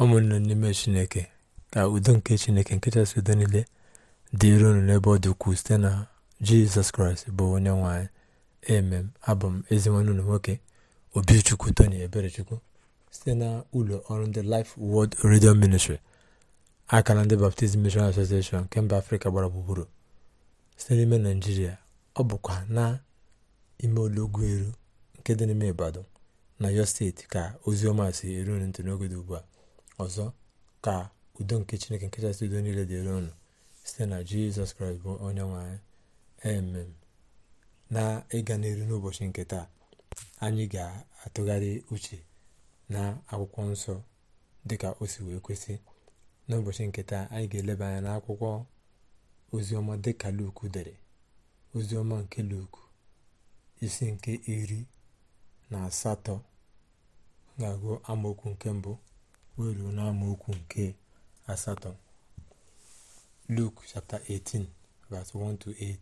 ụmụnne n'ime chineke ka udo nke chineke nke chasị udo niile dịrị unu n'ebe ọ dị ukwuu site na jizọs kraịst bụ onye nwanyị emem abụ m ezinwanne ụlọ nwoke obichukwu tony eberechukwu site na ụlọ ọrụ ndị life word radio ministry aka na ndị baptizim mission association nke mba afrịka gbara gburugburu site n'ime naijiria ọ bụkwa na ime olọgwu eru nke dị n'ime ibadan na yo steeti ka ozi ọma si eru ntị n'oge dị ugbu a ọzọ ka udo nke chineke nke kachasị udo niile dịrị ọnụ site na jizọs kraịst bụ onye nwanyị emem na ịga n'iru n'ụbọchị nke taa anyị ga-atụgharị uche na akwụkwọ nsọ dịka o si wee kwesị n'ụbọchị nke taa anyị ga-eleba anya n'akwụkwọ oziọma dịka luku dere oziọma nke luku isi nke iri na asatọ ga-agụ amaokwu nke mbụ wee ruo n'amaokwu nke asatọ 18 verse 1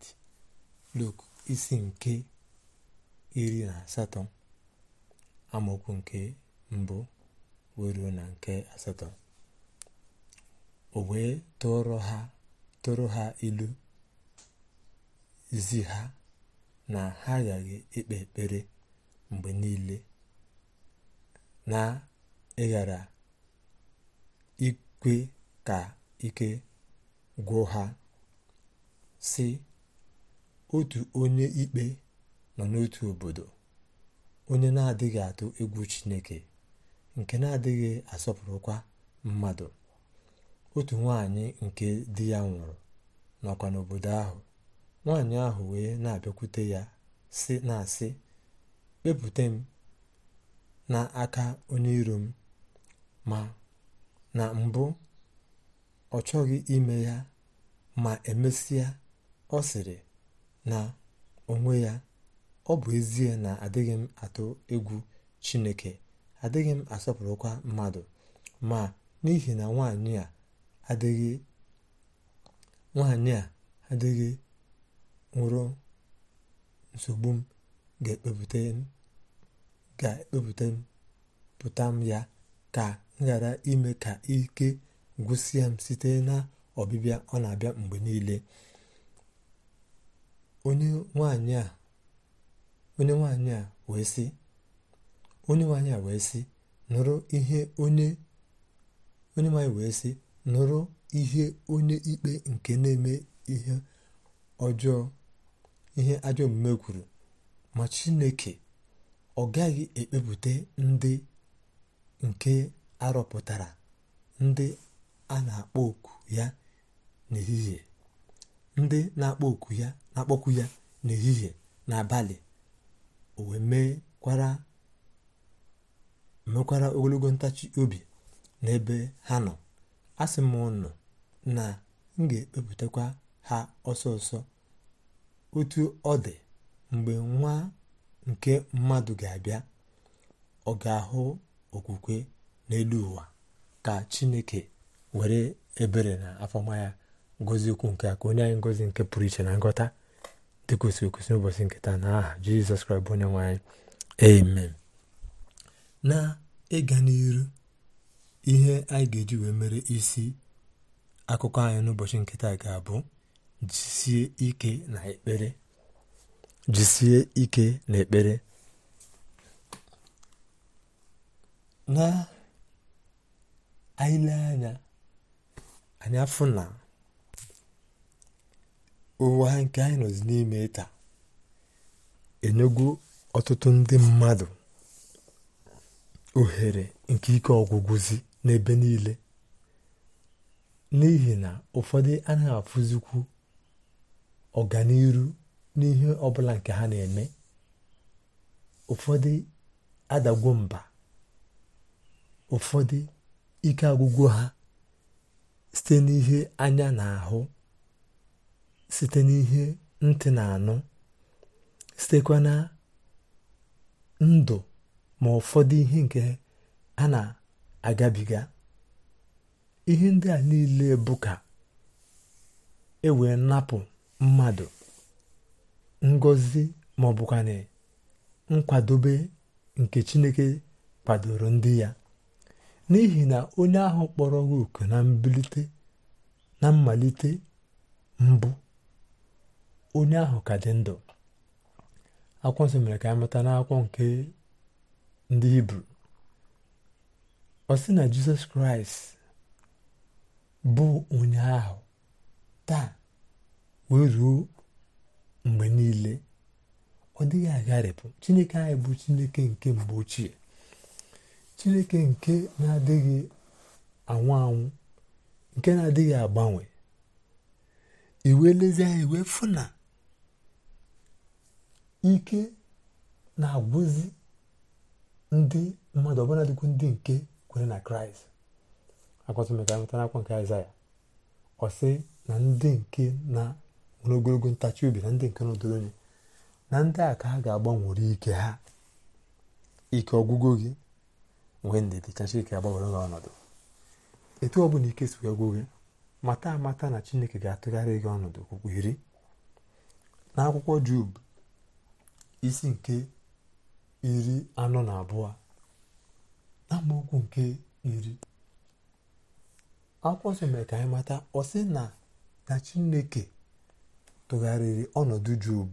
8 isi nke iri na asatọ amaokwu nke mbụ wee ruo na nke asatọ o wee tụrụ ha tụrụ ha ilu zi ha na ha aghaghị ikpe ekpere mgbe niile na ịghara ikwe ka ike gwụ ha si otu onye ikpe nọ n'otu obodo onye na-adịghị atụ egwu chineke nke na-adịghị asọpụrụkwa mmadụ otu nwanyị nke di ya nwụrụ nọkwa n'obodo ahụ nwanyị ahụ wee na-abịakwute ya si na-asị kpepute m n'aka onye iro m ma na mbụ ọ chọghị ime ya ma emesịa ọ sịrị na onwe ya ọ bụ ezie na adịghị m atụ egwu chineke adịghị m asọpụrụkwa mmadụ ma n'ihi na nwanyị a adịghị nwaanyị a adịghị nwụrụ nsogbu m ga-ekpepụta m m ya ka ghara ime ka ike gwụsịa m site na ọbịbịa ọ na-abịa mgbe niile onye nwanyị a wee sị onye nwanyị wee sị nụrụ ihe onye ikpe nke na-eme ihe ọjọọ ihe ajọ omume kwuru ma chineke ọ gaghị ekpepụta ndị nke arọpụtara ndị a na-akpọ oku ya n'ehihie ndị na-akpọ ya n'ehihie n'abalị o wee mekwara ogologo ntachi obi n'ebe ha nọ a sị m ụnụ na m ga-ekpepụtakwa ha ọsọ ọsọ otu ọ dị mgbe nwa nke mmadụ ga-abịa ọ ga-ahụ okwukwe n'elu ụwa ka chineke were ebere na afọma ya ngozi ukwu nke a ka onye anyị ngozi nke pụrụ iche na ngọta dị kwesịrị n'ụbọchị nketa na aha jizọs kraịst bụ onye nwe anyị amen na ịga n'iru ihe anyị ga-eji wee mere isi akụkọ anyị n'ụbọchị nkịta ga-abụ jisie ike na ekpere ike na ekpere na anyị lee anya anyị afụ na ụwa nke anyị nọzi n'ime taa enyego ọtụtụ ndị mmadụ ohere nke ike ọgwụgwụzi n'ebe niile n'ihi na ụfọdụ anaghị afụzikwu ọganiru n'ihe ọbụla nke ha na-eme ụfọdụ adagwo mba ụfọdụ ike agwụgwụ ha site n'ihe anya na-ahụ site n'ihe ntị na-anụ sitekwa na ndụ ma ụfọdụ ihe nke a na-agabiga ihe ndị a niile bụ ka e wee napụ mmadụ ngọzi ma ọ bụkwanị nkwadobe nke Chineke kwadoro ndị ya n'ihi na onye ahụ kpọrọ gị oku na mbilite na mmalite mbụ onye ahụ ka dị ndụ akwụkwọ mere ka anyị mụta n'akwụkwọ nke ndị hibru ọ sị na jizọs kraịst bụ onye ahụ taa wee ruo mgbe niile ọ dịghị agharịpụ chineke anyị bụ chineke nke mgbe ochie chineke nke na-adịghị anwụ anwụ nke na-adịghị agbanwe iwe lezi anya iwe na ike na-agwụzi ndị mmadụ ọbụla dịkwu ndị nke kwere na kraịst akọtụmeka nwetara akwa nke aịzaya ọsị na ndị nke na nwere ogologo ntachi obi na ndị nke nọdụrụ na ndị a ka ha ga-agbanwere ike ha ike ọgwụgwụ gị nwee ndidi ka chineke agbanwere ọnọdụ etu ọ bụla ike sikwa gwụ gị mata amata na chineke ga-atụgharị gị ọnọdụ okpukpu iri n'akwụkwọ jub isi nke iri anọ na abụọ na amaokwu nke iri akwụkwọ nsọ mere ka anyị mata ọ sị na na chineke tụgharịrị ọnọdụ jub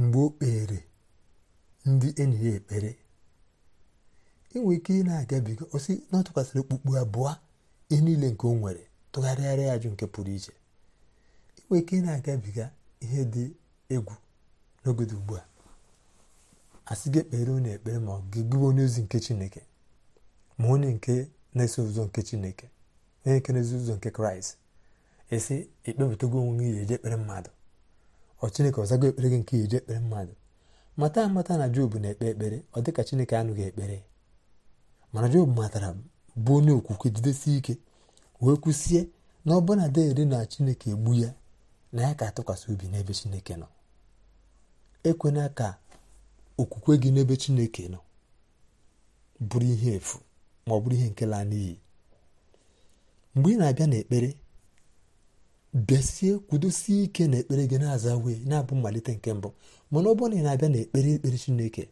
mgbe o kpere ndị enyi ya ekpere inwe ike ị na-agabiga osi na ọ okpukpu abụọ ihe niile nke ọ nwere tụgharịgharịa ajụ nke pụrụ iche inwe ike ị na-agabiga ihe dị egwu n'ogodo ugbu a asị gị ekpere onye ekpere ma ọ gị gụwa onye ozi nke chineke ma onye nke na-eso ụzọ nke chineke onye nke na-eso ụzọ nke kraịst esi ekpepụtago onwe gị eje ekpere mmadụ ọ chineke ọzago ekpere gị nke eje ekpere mmadụ mata amata na jobu na-ekpe ekpere ọ dịka chineke anụghị ekpere mana Job matara bụ onye okwukwe jidesie ike wee kwụsie na ọbụna dere na Chineke egbu ya na ya ka atụkwasị obi n'ebe Chineke nọ ekwena ka okwukwe gị n'ebe Chineke nọ bụrụ ihe efu ma ọ bụrụ ihe nke laa n'iyi mgbe ị na-abịa n'ekpere bịasie kwudosie ike n'ekpere gị na-aza wee na-abụ mmalite nke mbụ mana ọ na ị na-abịa n'ekpere ekpere Chineke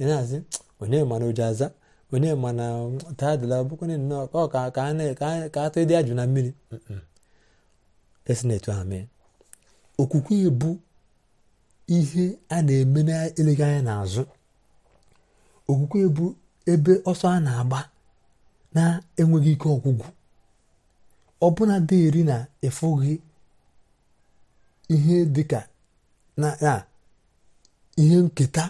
ị na-azị onye mara oji aza ma onyemana bụkwa bụkwana nnọọ ka a atụ ịdị ajụ na mmiri esi na etu okwukwe bụ ihe a na-eme na-eleghị anya n'azụ okwukwe bụ ebe ọsọ a na-agba na-enweghị ike ọgwụgwụ ọbụna dị eri na ịfụghị ihe dịka na ihe nketa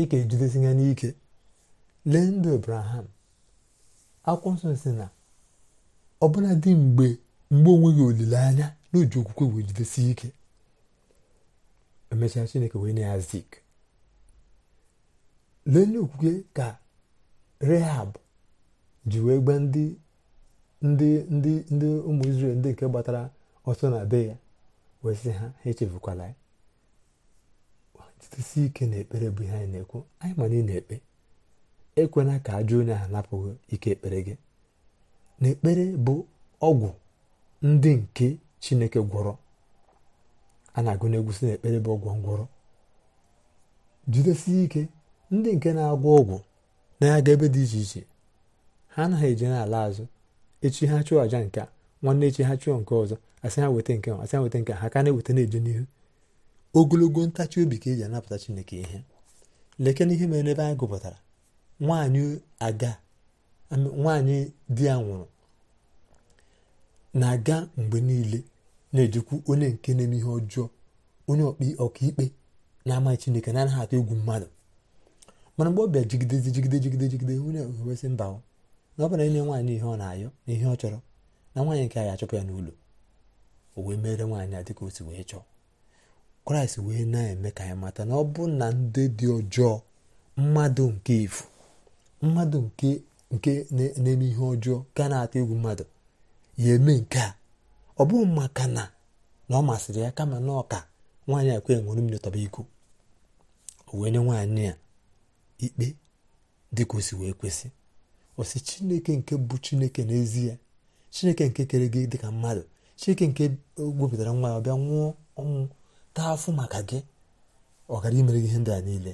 ị ejidesi ya n'ike lee ndụ abraham akwụkwọ nsọ si na dị mgbe mgbe onweghị olileanya na oji okwukwe wee jidesi ike emechaa chineke wee nye ya zik lee n'okwukwe ka rehab ji wee gba ndị ndị ndị ndị ụmụ Izrel ndị nke gbatara ọsọ na be ya wee sị ha ha echefukwala ya jidesi ike na ekpere bụ ihe anyị na-ekwu anyị ma na ị na-ekpe ekwena ka ajọ onye ahụ napụghị ike ekpere gị na ekpere bụ ọgwụ ndị nke chineke gwọrọ a na-agụ egwu si na ekpere bụ ọgwụ ngwọrọ jidesie ike ndị nke na-agwọ ọgwụ na-aga ebe dị iche iche ha anaghị eje n'ala azụ echi ha chụọ àja nke a nwanne echi ha chụọ nke ọzọ asị ha weta nke asị ha weta nke ha ka na-eweta na-eje n'ihu ogologo ntachi obi ka eji anapụta chineke ihe lekena ihe mere n'ebe anyị gụpụtara nwanyị aga nwanyị di ya nwụrụ na-aga mgbe niile na ejikwu onye nke na-eme ihe ọjọọ onye ọkaikpe na-amaghị chineke na-anaghị atụ egwu mmadụ mana mgbe ọ bịa jigidezi jigide jigide jigide onye ewesị mba na ọ bụla nye nwaanyị ihe ọ na-ayọ na ihe ọ chọrọ na nwaanyị nke a achụpụ ya n'ụlọ o wee mere nwaanyị a dịka o si wee chọọ kraịst wee na-eme ka anyị mata na ọ bụ na ndị dị ọjọọ mmadụ nke ifu mmadụ nke nke na-eme ihe ọjọọ ga na-atụ egwu mmadụ ya eme nke a ọ bụghị maka na na ọ masịrị ya kama na ọka nwaanyị a kwe nwere mmiri iko o wee nwaanyị a ikpe dịka o wee kwesị ọ si chineke nke bụ chineke n'ezie chineke nke kere gị dịka mmadụ chineke nke wepụtara nwa ya ọ bịa nwụọ ọnwụ taa afụ maka gị ọ gara imere gị ihe ndị a niile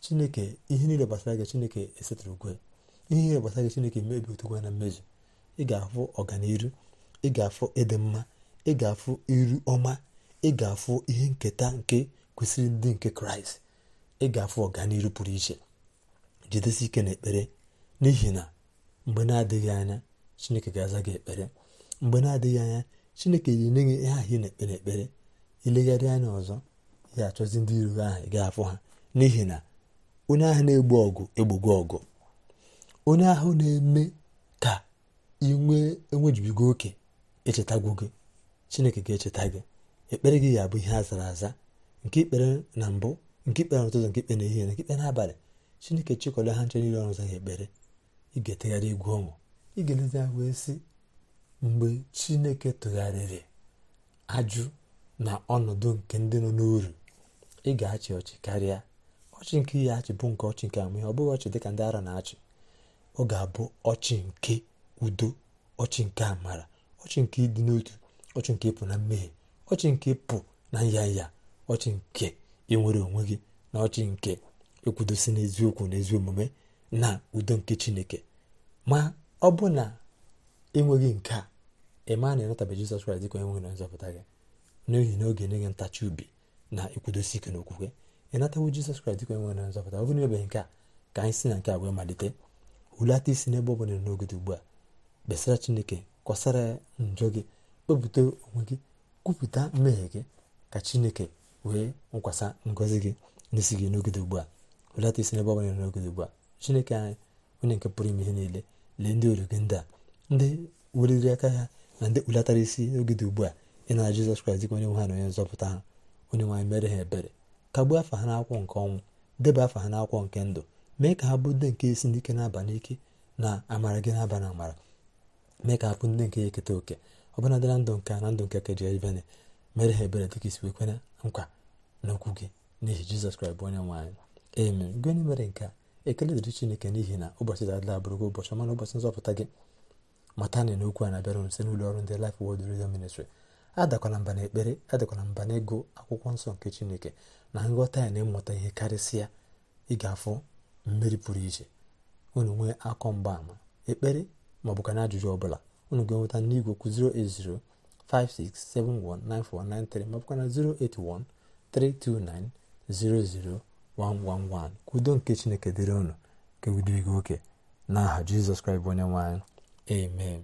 chineke ihe niile gbasara gị chineke esetụrụ ugwe ihe niile gbasara gị chineke mebi otugwa na mmezu ị ga-afụ ọganiru ị ga-afụ ịdị mma ị ga-afụ iru ọma ị ga-afụ ihe nketa nke kwesịrị ndị nke kraịst ị ga-afụ ọganiru pụrụ iche jidesi ike na ekpere n'ihi na mgbe na-adịghị anya chineke ga-aza gị ekpere mgbe na-adịghị anya chineke ga-enye gị ihe ahụ ị na-ekpere ekpere ilegharị anya ọzọ ị ga-achọzi ndị iro ahụ ị ga-afụ ha n'ihi na onye ahụ na-egbu ọgụ egbugo ọgụ onye ahụ na-eme ka inwe enwejibigo oke echetagwu gị chineke ga-echeta gị ekpere gị ya bụ ihe a zara aza nke ikpere na mbụ nke ikpere n'ụtụtụ nke ikpe n'ehihie na ikpe n'abalị chineke chịkọrọ ha nche niile ọrụ zaghị ekpere ị etegharị egwu ọnwụ ị ga wee sị mgbe chineke tụgharịrị ajụ na ọnọdụ nke ndị nọ n'uru ị ga-achị ọchị karịa ọchị nke ya achị bụ nke ọchị nke amụhe ọ bụghị ọchị dịka ndị ara na-achị ọ ga-abụ ọchị nke udo ọchị nke amara ọchị nke ịdị n'otu ọchị nke ịpụ na mmehie ọchị nke ịpụ na nya ọchị nke ịnwere onwe gị na ọchị nke ekwudosi n'eziokwu na ezi omume na udo nke chineke ma ọ bụ na enweghị nke a ịma na ịnọtabe jizọs kraịst dịka onye nwe na nzọpụta gị n'ihi na oge enye gị ntachi obi na ekwudosi ike na ịnatawo jizọs kraịst dịka onye na nzọpụta ọ bụrụ ebeghị nke a ka anyị si na nke a wee malite hulata isi n'ebe ọ bụla nọ n'oge dị ugbu a besara chineke kọsara ya mm, njọ gị kpepụta onwe gị kwupụta mmehie gị ka chineke wee nkwasa ngọzi gị n'isi gị n'oge dị ugbu a hulata isi n'ebe ọ bụla nọ n'oge dị ugbu a chineke anyị onye nke pụrụ ime ihe niile lee ndị olu gị ndị a ndị weliri aka ha na ndị kpulatara isi n'oge dị ugbu a ị na jizọs kraịst dịka onye nwe ha na onye nzọpụta ha onye nwaanyị mere ha ebere kagbuo afa ha n'akwụkwọ nke ọnwụ deba afa ha n'akwụkwọ nke ndụ mee ka ha bụ ndị nke esi n'ike na-aba n'ike na amara gị na-aba na amara mee ka ha bụ ndị nke ya eketa oke ọbụnadị na ndụ nke na ndụ nke keje ivene mere ha ebere dịka isi kwekwana nkwa n'okwu gị n'ihi jizọs kraịst bụ onye nwe anyị eme mere nke a ekele dịrị chineke n'ihi na ụbọchị dadịla abụrụgo ụbọchị ọma na ụbọchị nzọpụta gị mata na n'okwu a na-abịara site n'ụlọ ọrụ ndị Life Word Radio Ministry adakwala mba n'ekpere adakwala mba n'ego akwụkwọ nsọ nke chineke na nghọta ya na ịmụta ihe karịsịa ị ga-afụ mmeri pụrụ iche unu nwee akọ mgbaama ekpere ma ọ na ajụjụ ọbụla unu ga-enweta n'igwe okwu 08056719493 ma ọ na 08132900111 ka udo nke chineke dịrị ụnụ nke udo oke n'aha jizọs kraịst onye nwe amen